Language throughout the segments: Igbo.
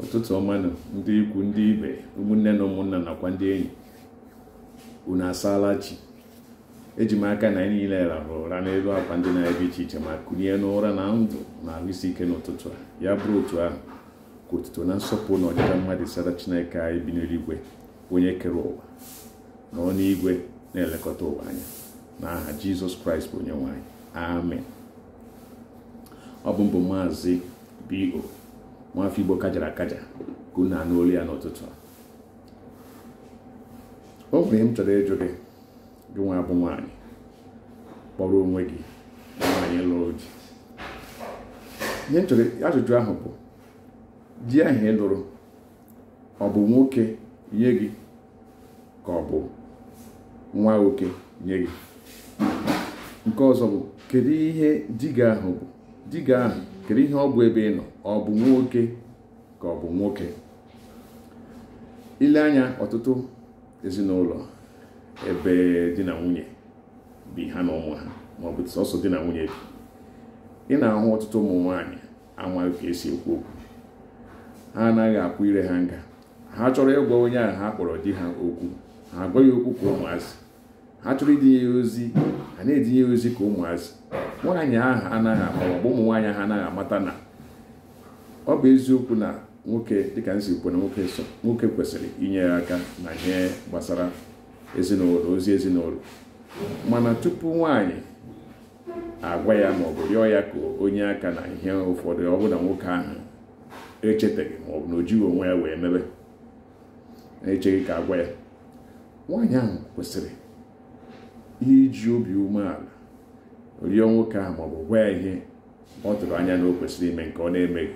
ụtụtụ ọmanụ ndị ikwu ndị ibe ụmụnne na ụmụnna nakwa ndị enyi unu asaala chi eji m aka na anyị niile rahụrụ ụra n'elu akwa ndị na-ebe iche iche ma kunye n'ụra na ndụ na ahụ isi ike n'ụtụtụ a ya bụrụ otu ahụ ka otuto na nsọpụrụ na ọdịda mmadụ sara chineke anyị bi n'eluigwe onye kere ụwa na ọnụ igwe na-elekọta ụwa anya na aha jizọs kraịst bụ onye anyị amen ọ bụ mbụ maazị bo nwafọ igbo kajara akaja ka unu anụ olu ya n'ụtụtụ o nwere ihe m chọrọ ịjụ gị gị nwa bụ nwaanyị kpọrọ onwe gị nwaanyị lụrụ di ihe m chọrọ ajụjụ ahụ bụ di ahụ ị lụrụ ọ bụ nwoke nye gị ka ọ bụ nwa nwoke nye gị nke ọzọ bụ kedu ihe diga ahụ bụ diga ahụ kedu ihe ọ bụ ebe ị nọ ọ bụ nwoke ka ọ bụ nwoke ile anya ọtụtụ ezinụlọ ebe di na nwunye bi ha na ụmụ ha ma ọ bụ sọsọ di na nwunye bi ị na-ahụ ọtụtụ ụmụ nwaanyị amaghị ka esi ekwu okwu ha anaghị akwụ ire ha nga ha chọrọ ịgwa onye a ha kpọrọ di ha okwu ha agwaghị okwu ka ụmụazị ha chọrọ idinye ya ozi ha na-edinye ya ozi ka ụmụazị nwaanyị ahụ anaghị ama ụmụ nwaanyị ahụ anaghị amata na ọ bụ eziokwu na nwoke dịka nsi kwu na nwoke so nwoke kwesịrị inye ya aka na ihe gbasara ezinụlọ ozi ezinụlọ mana tupu nwaanyị agwa ya maọbụ rịọ ya ka onye aka na ihe ụfọdụ ọ bụla nwoke ahụ ọ maọbụ na o onwe ya wee mebe na-echeghị ka agwa ya nwaanyị ahụ kwesịrị iji obi umeala rịọ nwoke ahụ maọbụ gwa ihe ọ tụrụ anya na o kwesịrị ime nke ọ na-emeghị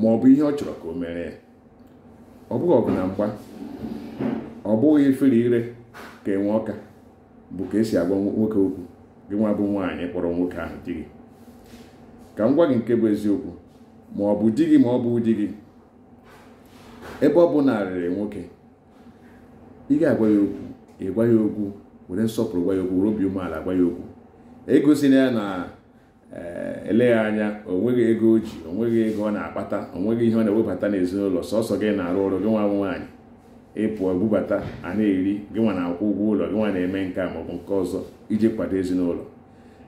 ma ọ bụ ihe ọ chọrọ ka o mere ya ọ bụghị ọgụ na mgba ọ bụghị ifere ire ka enwe ọka bụ ka esi agwa nwoke okwu gị nwa bụ nwaanyị kpọrọ nwoke ahụ di gị ka m gwa gị nke bụ eziokwu ma ọ bụ di gị ma ọ bụ di gị ebe ọ bụ narịrị nwoke ị ga-agwa ya okwu ị gwa ya okwu were nsọpụrụ gwa ya okwu were obi umeala gwa ya okwu na ya na eh, eleghị anya o nweghị ego o ji onweghị ego ọ na-akpata onweghị ihe ọ na-ewebata n'ezinụlọ sọsọ gị na-arụ ọrụ gị nwa bụ nwaanyị ịpụọ ebubata a na-eri gị nwa na-akwụ ụgwọ ụlọ gị nwa na-eme nke a maọbụ nke ọzọ iji kwado ezinụlọ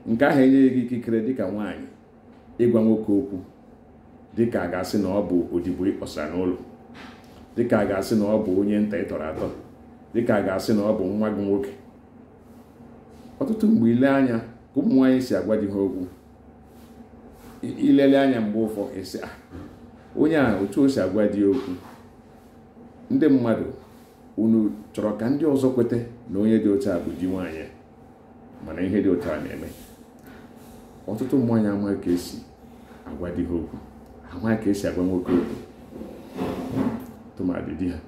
nke ahụ enyeghị gị ikikere dịka nwaanyị ịgwa nwoke okwu dịka a ga-asị na ọ bụ odibo ịkpọsa n'ụlọ dịka a ga-asị na ọ bụ onye nta ịtọrọ atọ dịka a ga-asị na ọ bụ nwa gị nwoke ọtụtụ mgbe ile anya ụmụ nwanyị si agwa ha okwu ilele anya mgbe ụfọ esi ah, onye a otu o si agwa di okwu ndị mmadụ unu chọrọ ka ndị ọzọ kweta na onye dị otu a bụ di nwaanyị mana ihe dị otu a na-eme ọtụtụ nwaanyị ama ka esi agwa ha okwu amaghị ka esi agwa nwoke okwu tụmadị di ha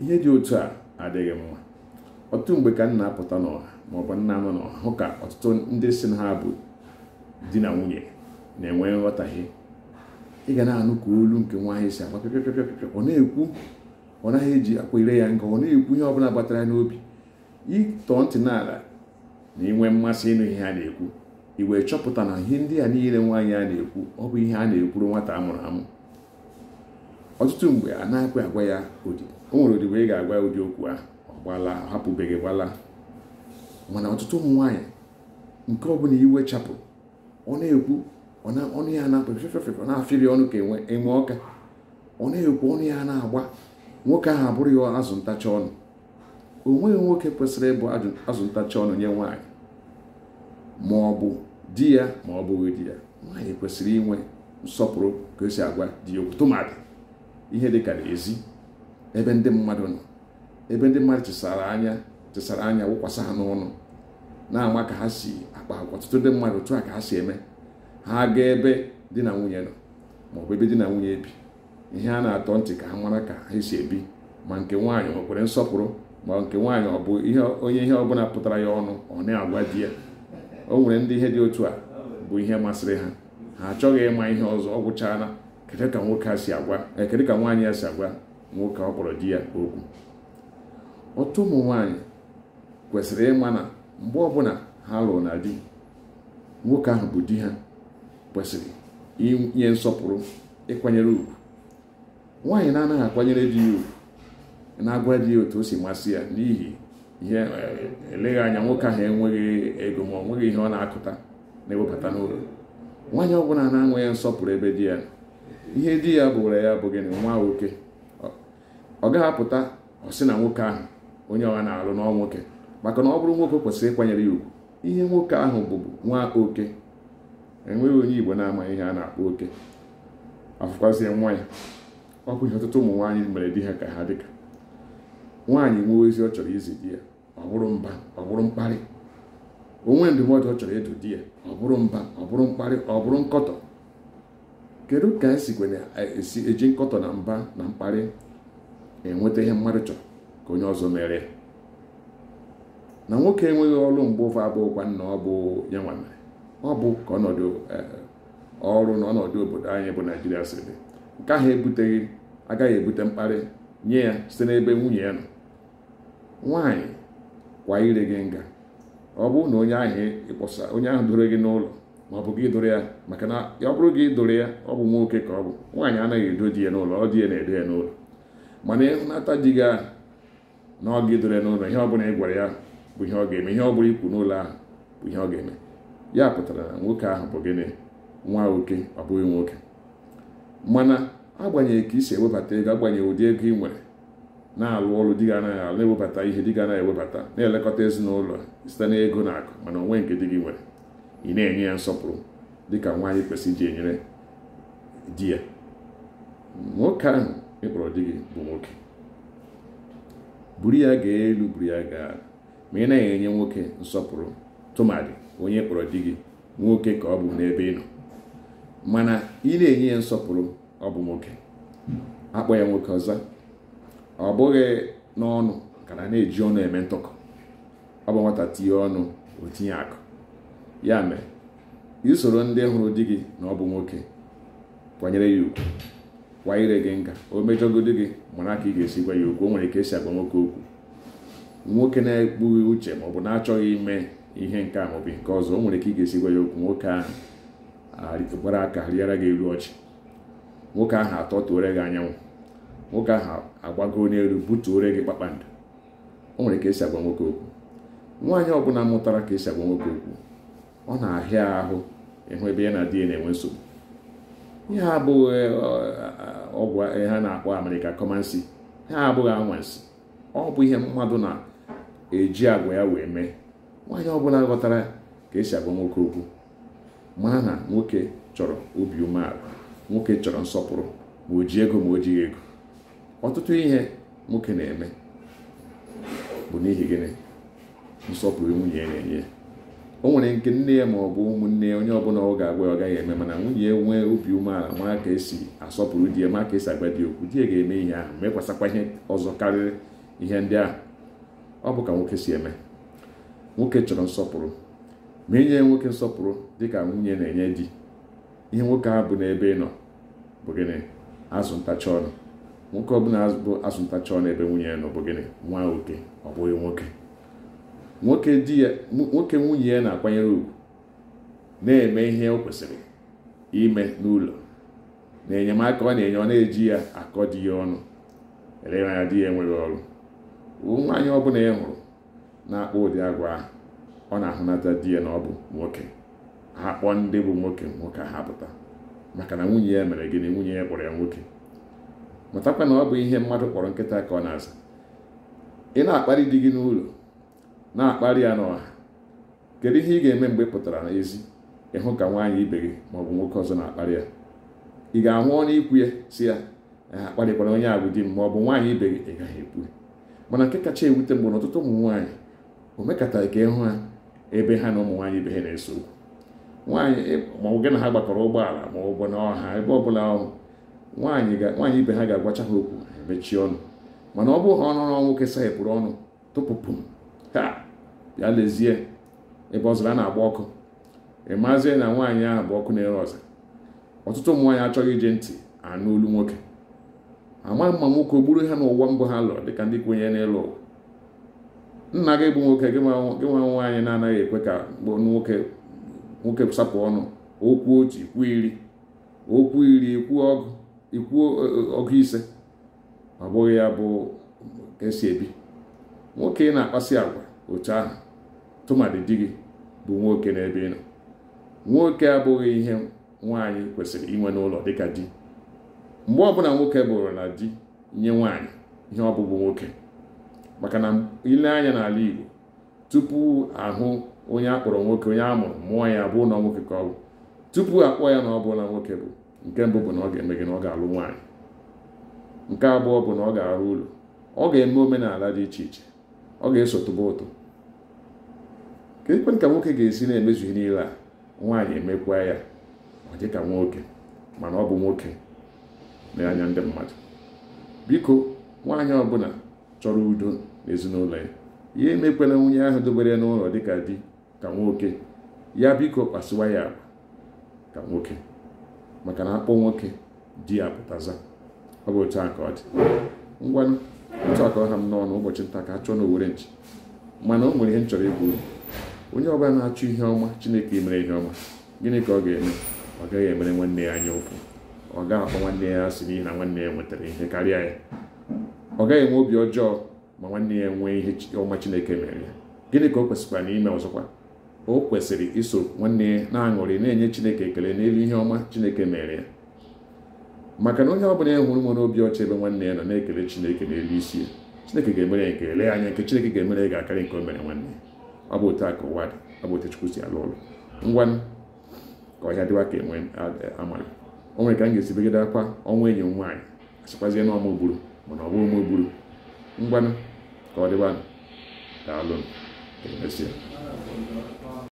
ihe dị otu a adịghị mma ọtụtụ mgbe ka nna apụta n'ọha maọbụ nna anọ n'ọha hụ ka ọtụtụ ndị si na ha bụ di na nwunye na-enwe nghọtahie ị ga na-anụ ka olu nke nwa ahụ si agba pịpịpịpịpị ọ na-ekwu ọ naghị eji akwa ire ya nga ọ na-ekwu ihe ọbụla gbatara n'obi ịtọọ ntị n'ala na inwe mmasị ịnụ ihe a na-ekwu ị wee chọpụta na ihe ndị a niile nwaanyị a na-ekwu ọ bụ ihe a na-ekwuru nwata a mụrụ amụ ọtụtụ mgbe a na agwa ya odi o nwere odibo ị ga-agwa ya ụdị okwu ahụ gbala hapụbeghị gbala mana ọtụtụ ụmụ nwaanyị nke ọbụla iwe chapụ ọ na-ekwu ọnụ ya na-apụ fefefefe na-afịrị ọnụ ka enwe ọka ọ na-ekwu ọnụ ya na-agba nwoke ahụ abụrụ ya azụ ntacha ọnụ o nweghị nwoke kwesịrị ịbụ azụ ntacha ọnụ nye nwaanyị ma ọ bụ di ya ma ọ bụghị di ya nwaanyị kwesịrị inwe nsọpụrụ ka o si agwa di ya okwu tụmadị ihe dịka ezi ebe ndị mmadụ nọ ebe ndị mmadụ chesara anya chesara anya wụkwasị ha n'ọnụ na-ama ka ha si akpa agwa ọtụtụ ndị mmadụ otu a ka ha si eme ha gaa ebe di na nwunye nọ maọbụ ebe di na nwunye bi ihe a na-atọ ntị ka ha mara ka ha si ebi ma nke nwaanyị ọ kwere nsọpụrụ ma nke nwaanyị ọ bụ onye ihe ọbụla pụtara ya ọnụ ọ na-agwa di ya o nwere ndị ihe dị otu a bụ ihe masịrị ha ha achọghị ịma ihe ọzọ ọ gwụchaala kedu ka nwoke a si agwa eh, kedu ka nwaanyị ya si agwa nwoke ọ kpọrọ di ya okwu otu ụmụ nwanyị kwesịrị ịma na mgbe ọbụla ha lụrụ na di nwoke ahụ bụ di ha kwesịrị inye nsọpụrụ ịkwanyere ugwu nwaanyị na-anaghị akwanyere di ya ugwu na-agwa di ya otu o si masị ya n'ihi ihe e, eleghị anya nwoke ahụ enweghị ego ma ọ nweghị ihe ọ na-akụta na ewepụta n'ụlọ nwaanyị ọbụla na-anweghị nsọpụrụ ebe di ya ihe di ya bụrụ ya bụ gịnị nwa nwoke ọ gaghị apụta ọ sị na nwoke ahụ onye ọha na-alụ n'ọ nwoke maka na ọ bụrụ nwoke kwesịrị ịkwanyere ya ugwu ihe nwoke ahụ bụbu nwa oke enweghị onye igbo na-amaghị ihe a na-akpọ oke afụkwazie nwa ya ọ bụ ihe ọtụtụ ụmụ nwaanyị mere di ha ka ha dịka nwaanyị nwee ozi ọ chọrọ izi di ya ọ bụrụ mba ọ bụrụ mkparị onwe ndụmọdụ ọ chọrọ ịdụ di ya ọ bụrụ mba ọ bụrụ mkparị ọ bụrụ nkọtọ kedu ka esikwe na-esi eji nkọtọ na mba na mkparị enweta ihe mmadụ chọrọ ka onye ọzọ mere na nwoke enweghị ọrụ mgbe ụfọ abụghịkwa nna ọ bụ ya nwa ọ bụ ka ọnọdụ e, ọrụ na ọnọdụ obodo anyị bụ naijiria si dị nke ahụ ebuteghị agaghị ebute mkparị nye ya site n'ebe nwunye ya nọ nwaanyị kwa ire gị nga ọ bụ na onye ahụ ịkpọsa onye ahụ doro gị n'ụlọ ma ọ bụ gị ya maka na ọ bụrụ gị doro ya ọ bụ nwoke ka ọ bụ nwaanyị anaghị edo di ya n'ụlọ ọ di ya na-edo ya n'ụlọ mana ịhụnata di gị ahụ na ọ ga n'ụlọ ihe ọbụla ị gwara ya bụ ihe ọ ga-eme ihe ọ bụla ikwu n'ụlọ ahụ bụ ihe ọ ga-eme ya pụtara na nwoke ahụ bụ gịnị nwa oke ọ bụghị nwoke mana agbanyeghị ka i si ewebata ego agbanyeghị ụdị ego ị nwere na-alụ ọrụ dị ga anaghị alụ na-ewebata ihe dị gị anaghị ewebata na-elekọta ezinụlọ site na ego na akụ mana onwe nke di gị nwere ị na-enye ya nsọpụrụ dịka nwaanyị kwesịrị iji enyere di ya nwoke ahụ ịkpọrọ di gị bụ nwoke buru ya gaa elu buru ya gaa ma ị naghị enye nwoke nsọpụrụ tụmadị onye kpọrọ di gị nwoke ka ọ bụ n'ebe ị nọ mana ị na-enye ya nsọpụrụ ọ bụ nwoke akpọ ya nwoke ọzọ ọ bụghị n'ọnụ ka na na-eji ọnụ eme ntụkọ ọ bụ nwata tinye ọnụ o tinye akụ ya mere isoro ndị hụrụ di gị na ọ bụ nwoke kwanyere ya ugwu kwa ire gị nga o mejọgodi gị mara ka ị ga-esi gwa ya okwu o nwere ka esi agwa nwoke okwu nwoke na-ekpughị uche ma ọ bụ na-achọghị ime ihe nke a maọbụ nke ọzọ o nwere ka ị ga-esi gwa ya okwu nwoke ahụ gbara aka rịara gị elu ọchị nwoke ahụ tuore gị anyanwụ nwoke ahụ agbago n'elu butuore gị kpakpando o nwere ka esi agwa nwoke okwu nwaanyị ọbụla mụtara ka esi agwa nwoke okwu ọ na-ahịa ahụ ịhụ ebe ya na di ya na-enwe nsogbu ihe a abụghị e, e, ọgwụ ha na-akpọ amerịka kọmansi ha abụghị anwansi ọ bụ ihe mmadụ na-eji agwa ya wee mee nwaanyị ọbụla ghọtara ka esi agwa nwoke okwu mara na nwoke chọrọ obi umeala nwoke chọrọ nsọpụrụ ma o ji ego ma o jighị ego ọtụtụ ihe nwoke na-eme bụ n'ihi gịnị nsọpụrụ nwunye na-enye o nwere nke nne ya ma ọ bụ ụmụnne ya onye ọbụla ọ ga-agwa ọ gaghị eme mana nwunye nwee obi umeala ma ka esi asọpụrụ di ya ma ka esi agwa di okwu di ya ga-eme ihe ahụ mekwasakwa ihe ọzọ karịrị ihe ndị ahụ ọ bụ ka nwoke si eme nwoke chọrọ nsọpụrụ ma enye nwoke nsọpụrụ dị ka nwunye na-enye di ihe nwoke ahụ bụ n'ebe ị nọ bụ gịnị azụ ntacha ọnụ nwoke ọbụla bụ azụ ntacha ọnụ ebe nwunye ya nọ bụ gịnị nwa oke ọ bụghị nwoke nwoke di ya nwoke nwunye ya na-akwanyere ugwu na-eme ihe o kwesịrị ime n'ụlọ na enyemaka ọ na-enye ọ na-eji ya akọ di ya ọnụ anya di ya enweghị ọrụ nwaanyị bụla ị e hụrụ na-akpọ ụdị agwa ahụ ọ na-ahụnata di ya na ọ bụ nwoke ha kpọọ ndị bụ nwoke nwoke ha pụta maka na nwunye ya mere gịnị nwunye ya kpọrọ ya nwoke mụtakwa na ọ bụ ihe mmadụ kpọrọ nkịta ka ọ na-aza ị na-akparị di gị n'ụlọ na akpali ya n'ọha kedu ihe ị ga-eme mgbe ị pụtara n'ezi ịhụ ka nwaanyị ibe gị ma bụ nwoke ọzọ na akpali ya ị ga-ahụ ọnụ ikwu ya si ya akparịkwara onye abụ di m bụ nwaanyị ibe gị ị gaghị ekwu mana nke kacha ewute mgbe n'ọtụtụ ụmụ nwaanyị o mekataghị ka ịhụ ha ebe ha na ụmụ nwaanyị ibe ha na-eso okwu nwaanyị maọbụ gị na ha gbakọrọ ụgbọala ma ọ bụ ebe ọ bụla ọnwụ nwaanyị ibe ha ga-agwacha ha okwu mechie ọnụ mana ọ bụghị ọnụ nwoke saghepụrụ ọnụ tụpụpụ ha ya lezie ebe ọzara na-agba ọkụ ịmazie na nwaanyị ahụ bụ ọkụ na-ere ọza ọtụtụ ụmụ nwaanyị achọghị ije ntị anụ olu nwoke ama mma nwoke o gburu ha n'ụwa mbụ ha lụrụ dịka ndị kwenye n'elu ụwa nna gị bụ nwoke gị nwa nwaanyị na-anaghị ekwe ka nwoke nwoke sapụ ọnụ okwu otu ikwu iri okwu iri ikwu e, e, ọgụ ise ọ bụghị ya bụ ka esi ebi nwoke ị na-akpasi agwa otu ahụ tụmadị di gị bụ nwoke n'ebe ị nọ nwoke abụghị ihe nwaanyị kwesịrị inwe n'ụlọ dịka di mgbe ọbụla nwoke bụrụ na di nye nwaanyị ihe ọbụbụ nwoke maka na ile anya n'ala Igbo tupu ahụ onye akpọrọ nwoke onye amụrụ mụọ ya bụ na nwoke ka ọ bụ tupu akpọọ ya na ọ bụla nwoke bụ nke mbụ bụ na ọ ga-eme gị na ọ ga-alụ nwaanyị nke abụọ bụ na ọ ga-arụ ụlọ ọ ga-eme omenala dị iche iche ọ ga-eso tụba ụtụ ka ekwentị ka nwoke ga-esi na-emezu ihe niile a nwaanyị emekwa ya ọ dị ka nwoke mana ọ bụ nwoke n'anya ndị mmadụ biko nwaanyị ọbụla chọrọ udo n'ezinụlọ ya ya emekwela nwunye ahụ dobere n'ụlọ dịka di ka nwoke ya biko kpasiwa ya ka nwoke maka na akpọ nwoke di ya pụtaza ọ bụ otu a ka ọ dị ngwanụ otu a ka ha m n'ọnụ ụbọchị nta ka a chọọ na owere nchi mana o nwere ihe m chọrọ ịgwa uru onye ọbụla na achọ ihe ọma chineke mere ihe ọma gịnị ka ọ ga-eme ọ gaghị emere nwanne ya anya ụkwụ ọ gaghị akpọ nwanne ya asị n'ihi na nwanne ya nwetara ihe karịa ya ọ gaghị enwe obi ọjọọ ma nwanne ya nwee ihe ọma chineke mere ya gịnị ka o kwesịkwara n'ime ọzọkwa o kwesịrị iso nwanne ya na-aṅụrị na-enye chineke ekele n'elu ihe ọma chineke mere ya maka na onye ọbụla ya e hụrụ nwere obi ọcha ebe nwanne ya nọ na-ekele chineke n'elu isi ya chineke ga-emere ya nke lee anya nke chineke ga-emere ya ga-akarị nke o mere nwanne ya ọ bụ otu a ka ụwa dị ọ bụ otu Chukwu si alụ ụlọ ngwa ka ọhịa dịwa ka enwe amara o nwere ka m ga-esi begide akwa ọnwa enyi m nwaanyị asịkwazie na ọmụ gburu mana ọ bụghị ụmụ gburu ngwanụ ka ọ dịwa daalụ mesịa